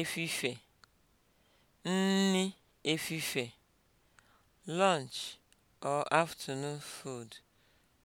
efife nni efife lunch or afternoon food